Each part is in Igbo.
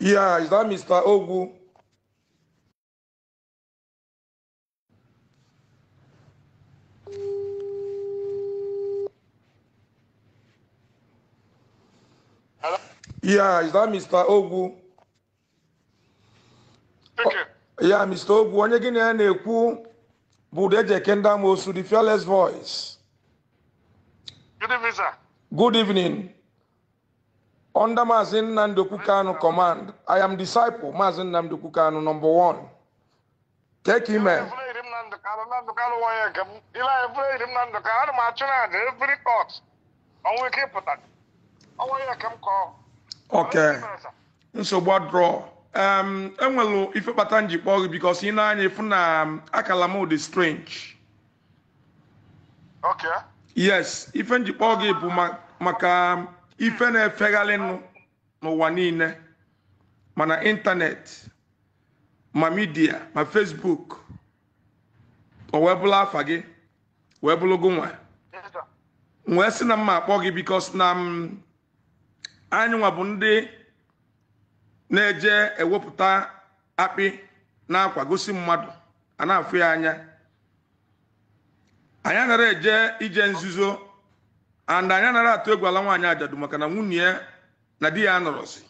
Yeah, is that Mr. Ogu? Hello? Yeah, is that Mr. Ogu? Okay. Oh, yeah, Mr. Ogu, onye gị na ya na-ekwu bụ Udejeke Ndamosu, the fearless voice. Good evening, sir. Good evening. under Mazin Nandoku Kanu command, I am disciple Mazin Nandoku Kanu number one. Take him man. Okay. nsogbu adrọ um, enwelu ife kpata njikpọ gị bikos ị na-anya efu na um, akala m dị strange okay. yes ife njikpọ gị bụ maka um, ife na-efegharị nụ n'ụwa niile mana ịntanetị ma midia ma fesbuk o wee bụrụ afa gị wee bụrụ Nwee wee sị na mma akpọ gị bikos na mm, anyị nwa bụ ndị na-eje ewepụta akpị na-akwa gosi mmadụ a na-afụ ya anya anyị anara eje ije nzuzo and anyị anaghị atụ egwu ala nwaanyị ajadu maka na nwunye ya na di ya nọrọzi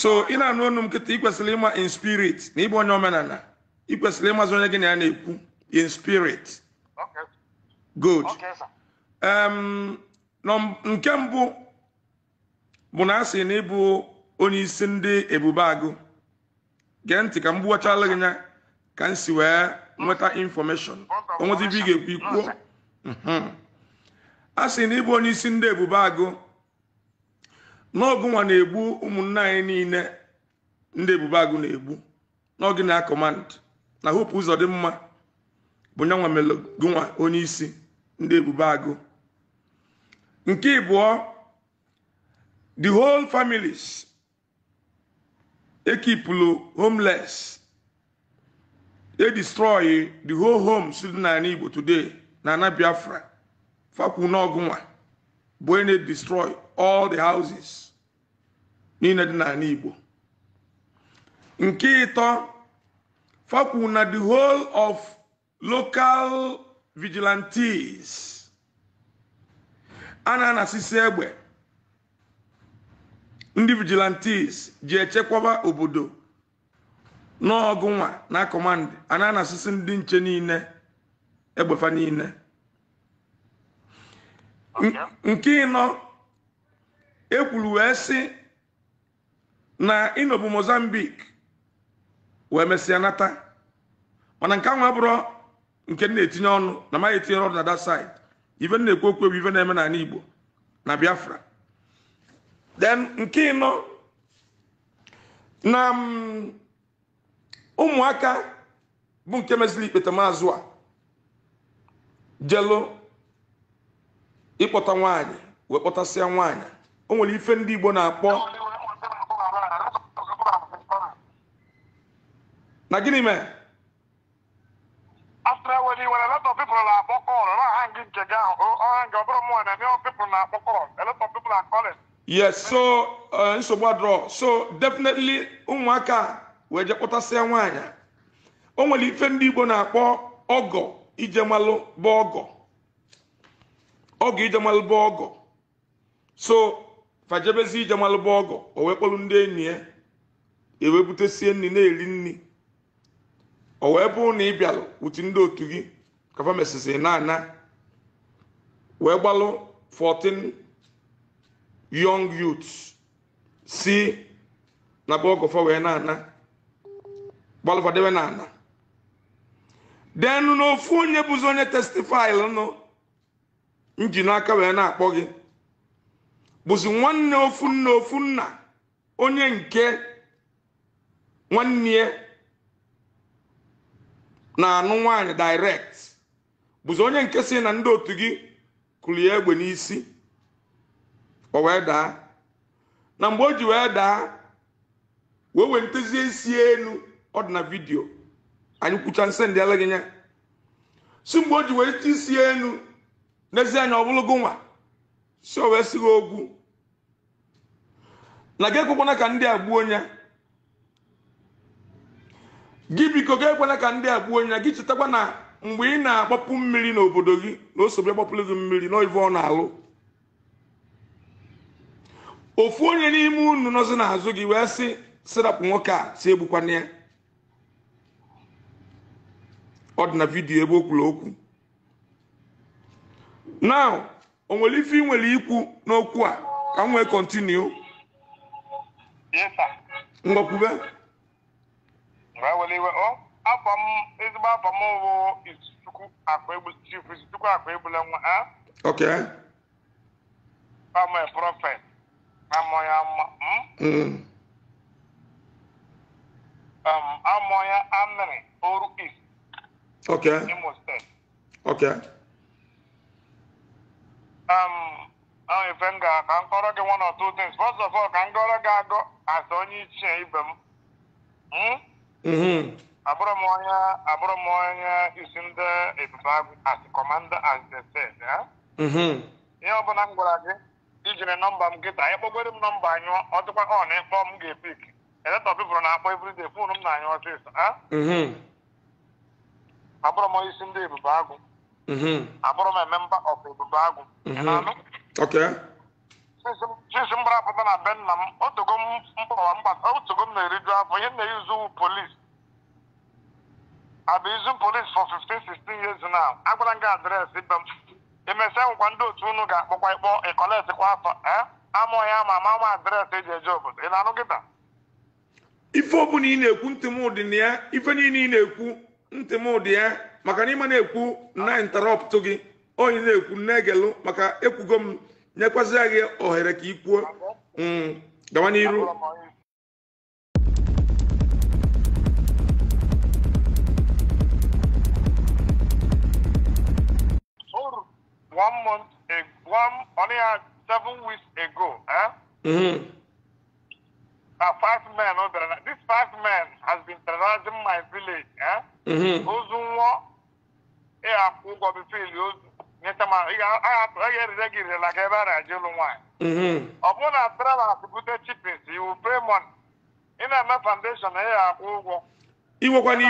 so ị na-anụ ọnụ m nkịta ị kwesịrị ịma in spirit na ịbụ onye omenala ị kwesịrị ịmazị onye gị na ya na-ekwu in spirit good nke mbụ bụ na asị na ịbụ onye isi ndị ebube agụ gee ntị ka m gbuwachala gị nya ka m si wee nweta infọmeshọn onwezi ibe ị ga-ekwu ikwuo a sị na ịbụ onye isi ndị ebube agụ n'ọgụnwa na-egbu ụmụnna anyị niile ndị ebube agụ na-egbu n'oge na kọmand na hopu ụzọ dị mma bụ nyanwa melogụnwa onye isi ndị ebube agụ nke ịbụọ the whole families ekipulu homeless e destroy the whole homes dị na Igbo today na Biafra fakwu n'ọgụ bụ onye destroy all the houses niile dị n'ala igbo nke ịtọ fakwu na the whole of local vigilantes a na-anasisi egbe ndị vigilantes ji echekwaba obodo n'ọgụ nwa na kọmand a na ndị nche niile egbefa niile nke ịnọ ekwuru wee sị na ịnọbụ mozambik wee mesịa nata mana nke ahụ abụrụ nke na-etinye ọnụ na maghị etinye ọnụ na that side ife na-ekwu okwu bụ na-eme n'ala Igbo na Biafra then nke ịnọ na mm, ụmụaka bụ nke meziri ikpete maazụ a jelo ịkpọta nwaanyị wee kpọtasịa nwaanyị o nwere ife ndị Igbo na-akpọ na gịnị mee yes so uh, nsogbu adọrọ so definitely ụmụaka wee je kpọtasịa nwaanyị o nwere ife ndị Igbo na-akpọ ọgọ ijemalụ bụ ọgọ ọgụ ijemalụba ọgụ so fajebezi ijemalụba ọgọ o wee kpọrọ ndị enyi ya ewee butesie nri na-eri nri o wee bụrụ na ị bịalụ uti ndị otu gị kafa mesịsị na ana wee gbalụ 14 young youths si na be ọgọfa wee na-ana gbalụfadebe na ana denu ofu onye bụzi onye testifil nụ nji n'aka wee na-akpọ gị bụzi nwanne ofu nna ofu nna onye nke nwanne na-anụ nwaanyị direct bụzi onye nke si na ndị otu gị kụrụ ya egbe n'isi o wee daa na mgbe o ji wee daa wee wee ntezie isi elu ọ dị na vidio anyị kwụcha nse ndị ala nya si mgbe o ji wee isi elu n'ezie anya ọ nwa si o wee ogwu na gị ekwekwana ka ndị a gbuo onye gị biko gị ekwana ka ndị a gbuo onye gị chetakwa na mgbe ị na-agbapụ mmiri n'obodo gị na osogbu agbapụrụ gị mmiri n'ive ọ na-alụ ofu onye n'ime unu nọzi n'azụ gị wee sị sirapụ nwoke a si egbukwana ya ọ dị na vidiyo ebe o kwuru okwu now onwere ife ị nwere ikwu n'okwu a ka m wee kọntinu ngọkwube e afọ m ezigbo afọ m bụ izuchukwu akpa egbu chief izuchukwu akpa egbula nwa ha ok amọ e prọfet amọ ya amọ hmm? mm. um, amọ ya amịrị oru is ok imo steeti ok ife m ga ka m kọrọ gị one of two things first of all ka m gọrọ gị agụ as onye ichie ibe m hmm? mm-hmm. abụrụ m onye abụrụ m onye isi ndị ebube agụ as commander as the said mm-hmm. ihe ọbụla m gwara gị ijiri nọmba m anyị ịkpọgoro m nọmba anyị ọ dịkwa ọ na ịkpọ m ga-epik eletọ bibụrụ na-akpọ dị fon m na-anyụ ọsịsọ mm-hmm. abụrụ m onye isi ndị ebube agụ abụrụ m member of ebube agụ pụta na be nna m otogo m na-eriju afọ ihe na-ezu polis abụ izu polis for 15 16 years now agwara m gị adreesị be m emesịa nkwa ndị otu unu ga-akpọkwa ịkpọ ịkọletikwa afọ eh? amụghị ama ama ama adreesị eji eje obodo ị na ị na-ekwu ntị na niile ị na-ekwu ntị ya maka na ịma na-ekwu na gị onye na-ekwu na-egelu maka ekwugo m nyekwazịa gị ohere ka ị kwuo mm, gawa n'iru one month ago, one only seven weeks ago, eh? Mm-hmm. Uh, five men, oh, this five men has been terrorizing my village, eh? Mm-hmm. Ozunwa, eh, I'm onye erire gị irela ebe a na-eje nwaanyị ọ bụrụ na travel bute iwu premon ị na-eme foundation ị ga-akwụ ụgwọ iwekwana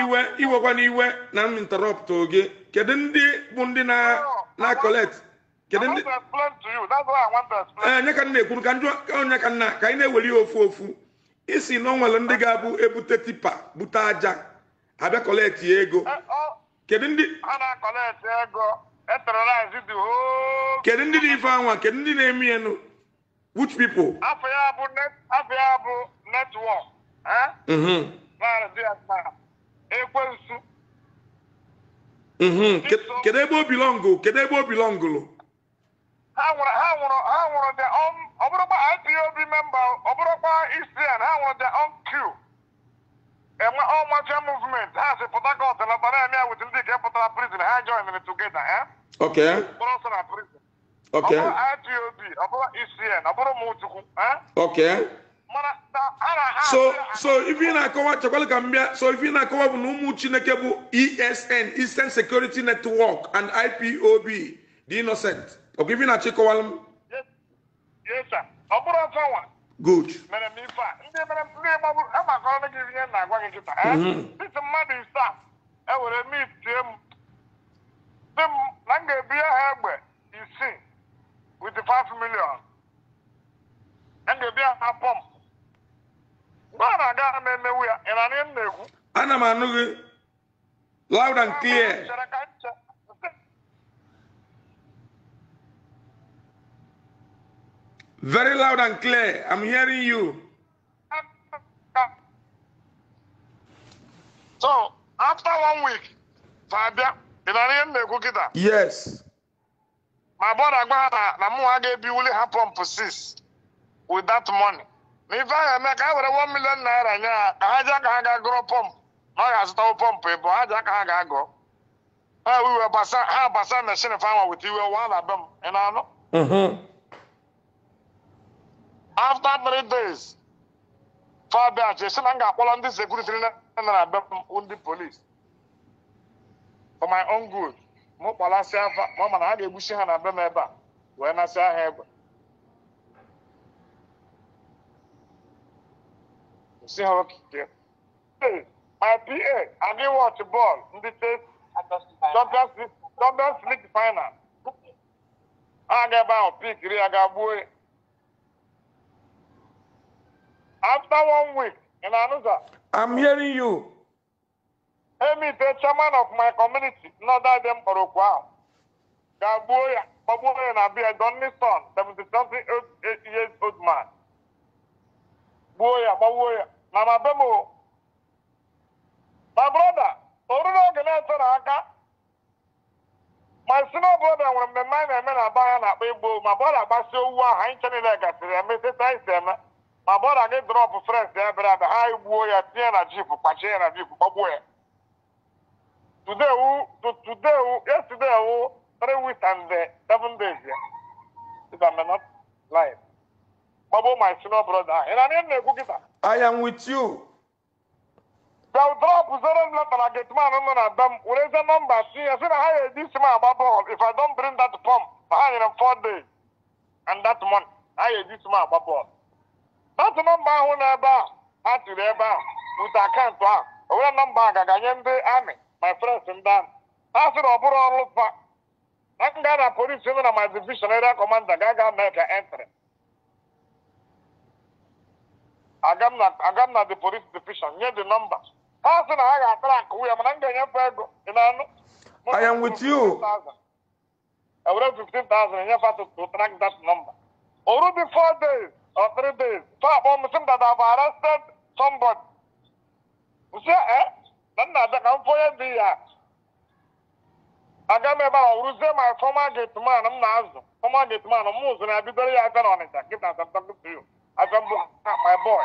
iwe iwe iwe na m interrupt oge kedu ndị bụ ndị na kedu ndị ka m na-ekwuru ka onye ka nna ka anyị na-eweli ofu ofu isi na ndị ga-abụ ebute tipa bute aja abịa ego kedu ndị e kedu ndị dị efe anwa kedu ndị na-eme ya nụ which people afọ ya bụ afọ ya bụ netwọk mm-hmm. ekwensu mm-hmm. kedu ebe obi bilọngụ kedu ebe obi bilọngụlụ ha nwụrụ ha nwụrụ ha nwụrụ the ọbụrụkwa ipob memba ọbụrụkwa isian e ha nwụrụ the onq enwe all martial movement ha si pụta Port Harcourt lọta na-eme ya wit ndị nke pụtara prison ha joinere togeda eh? ha. ọsọ na ọ bụrụ IPOB ọ bụrụ ECN ọ bụrụ Umuchukwu eh? so so ife na-akọwa chekwala ka m so ife ị na-akọwa bụ na ụmụ chineke bụ ESN Eastern Security Network and IPOB the Innocent ọkwa ife ị na achị ịkọwala m ọ bụrụ ọzọ nwa good mere m ife a ndị mere ndị gbagburu agbakọrọ gị ihe na-agwa gị kịta dịtụ eh? mm-hmm. mmadụ ise a ewere mit tie m dị m na m ga-ebinye ha egbe isii with 5 million m ga-ebinye ha pọm mgbe a na-aga ha na-emewu ya ị na-anị m na-ekwu ana m anụ gị loud and clear Very loud and clear. I'm hearing you. So, after one week, Fabia, in an end, go Kukita. Yes. My brother Ghana, Namuage Biuli had pump six with that money. If me make over one million naira, uh, I just can't grow pump. No, ya stop pump, eh, but I just can't go. We were passing, I passed machine farmer with you, one of them, and I know. Mm-hmm. after three days fabia si na m ga-akpọrọ ndị sekuriti na na be m ndị polis for my own good m kpalasị afa ma ma na ha ga egbusi ha na be m ebe a wee nasịa ha egbe si ha okike my pa adị wọch bọọlụ ndị steeti champions league final ha ga ebe ahụ pikiri ya ga gbuo ya After one week in Anusa. I'm hearing you. Emi ite chairman of my community, Northern Dem ahụ, ga-agbuo ya kpọgbuo ya na bia Donny Son, 70-something years old man. Gbuo ya gbagbuo ya na ma be m o. My brother, oruru oge na eto na aka. My senior brother nwere mmemme anyị na-eme na aba ya na-akpa egbo ma bọla gbasie owu ahụ anyị nche niile gasịrị eme sesa isi eme. ma bụọ na anyị drọpụ frens ya bịara abịa ha gbuo ya tinye na jip kpachie ya na jip gbagbuo ya tudewu tudewu yesterday three weeks and eh, seven days ya if I'm not lying gbagbuo my senior brother ahụ ịna anyị na-ekwu kịta I am with you bịa drọpụ zero letter na gateman nọ na dam werezie nọmba tinye sị na ha ga-eji isi m agba bọọlụ if I don bring that pump na ha nyere m four days and that month ha ga-eji isi m agba bọọlụ atụ nọmba ahụ na ebe a tiri ebe a bute akaụntụ ahụ, o nwere nọmba a ga-aganye ndị amị my friends ndị amị ha sị na ọ bụrụ ọrụ pa na nga na polisi nọ na my division area commander ga-aga mee ka entry aga na the police division nye the number ha sị na ha ga-atara nke nwunye mana m ga-enyefe ego ị na-anụ I am with you. I will have 15,000 and you have to track that number. Already four days, Afridis, sabon musun da zafaran state sombon. Musa eh, dan na da kan foyan ya. Aga me ba wuru se my former gate man na azụ Former gate man mu zo na bidoro ya kan onita. Kita sam my boy.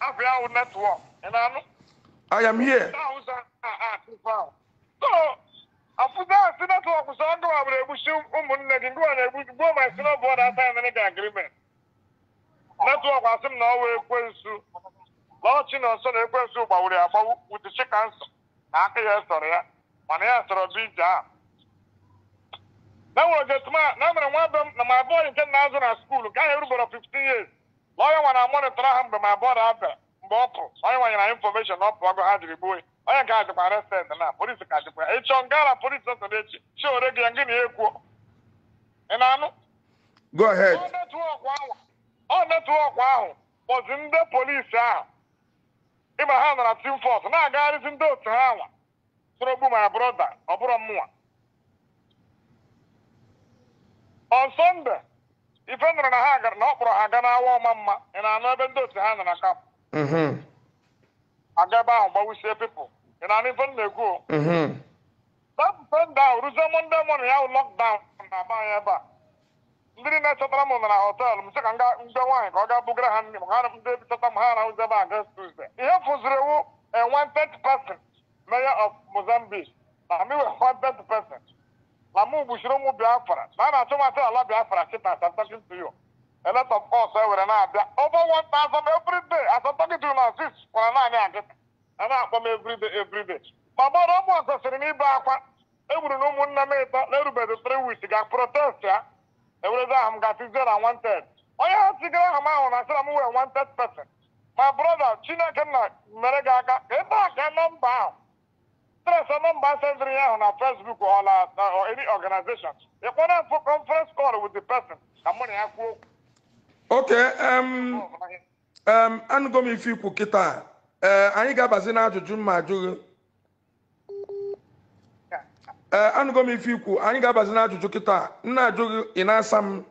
Afia our network. I am here. So, netwọk sọ ndụ na-egbusi gbuo ma si n'ọbụ ọda na netwọk asị m na ọwa ekwensu na ọchị na ọsọ na ekwensu gbawuru ya agbawu wudichi kansa na aka ya sọrọ ya mana ya sọrọ bụ ije a na-enwere ogetima na emere nwa be m na ma abụọ nke na azụ na skuulu nke ahụ erubere 15 years na onye nwara mọnịtọrọ ha mgbe ma abụọ na abịa mgbe ọ pụrụ onye nwanyere anyị infọmeshọn na ọ pụọ agụ ha jiri gbuo onye nke a dịkwa arestend na polisi ka dịkwa ya ịchọ nga ala polisi ọsọ na echi chi ore gị ya ngị na ya ị na-anụ go ahead ọ netwọk ahụ kpọzi ndị polisi ahụ ịma ha nara tim na-agagharịzi ndị otu ha nwa sorogbu ma brọda ọ bụrụ mụnwa on sọnde ife nụrụ na ha gara na ọ kpọrọ ha ga n'awa ọma mma ị na-anụ ebe ndị otu ha nara na kap mm-hmm. aga ebe ahụ gbawisie pipụl ị na-anụ ife m na-ekwu dapụ sọnde ahụ rụzie Mọnde mọnụ ya wụ lọkdaụn na-aba anya ebe a ndị na-achọtara m nọ na họtelụ m sị ka mbe nwaanyị ka ọ ga bugara ha nne m ha ndị chọta m ha arahụzebe aga Tuesday ihe fụziri ewu e wanted person mayor of Mozambique na m iwe wanted person na m gbuchiri ụmụ Biafra na a na-achọ mata ala Biafra chịta asamtakin to you a lot of us ewere na-abịa over one thousand every day asamtakin to you na six kwara naanị akịta. a na-akpọ m everyday everyday ma gbara ụmụ ọzọ sịrị n'ibe akwa egburu eh, na ụmụnne m ịtọ na erubeghị three weeks ga protest ya ewelebe aha m ga-asị zero wanted onye ha sigara aha m ahụ na asịra m wee wanted person ma broda chineke na mere ga aka ka ebe a ka nọmba ahụ tresọ nọmba sendịrị ahụ na fesbuk ọla any organization ịkpọrọ mfụ conference call with the person ka mụ na ya kwuo okwu oke anụgo m ife ikwu kịta eh, anyị ga-abazi na ajụjụ mma ee eh, m ife ikwu anyị ga-abazi n'ajụjụ kịta nna ajụ eh, eh, ị na-asa m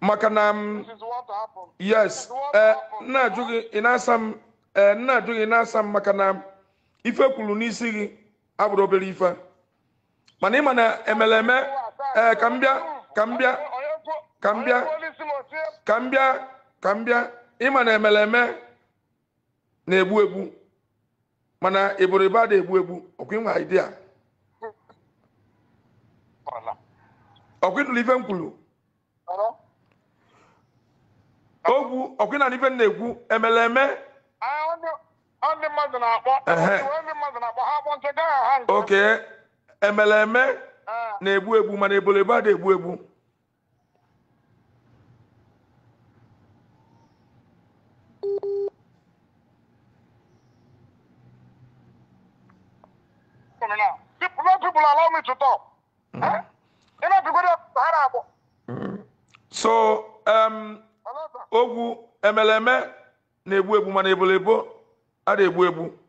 maka na m yes ee nna ajụ gị ị na-asa m nna ajụ gị na-asa m maka na ife kwuru n'isi gị abụrụ obere ife mana ịma na emere eme ee ka m bịa ka m bịa ka m bịa ka m bịa ka m bịa ịma na emere eme na-egbu egbu mana eboribe ada egbu egbu ọkwa ịnwa idea Ọkwị ịnụrụ ife m kwuru okwu ọkwa ịnara ife m na-ekwu emere eme mmadụ na-akpọ oke emere eme na-egbu egbu mana ebolo egbu adịghị egbu egbu Mm -hmm. Mm. so em um, ogwu emeleme na-egbu egbu mana ebolebo a na-egbu egbu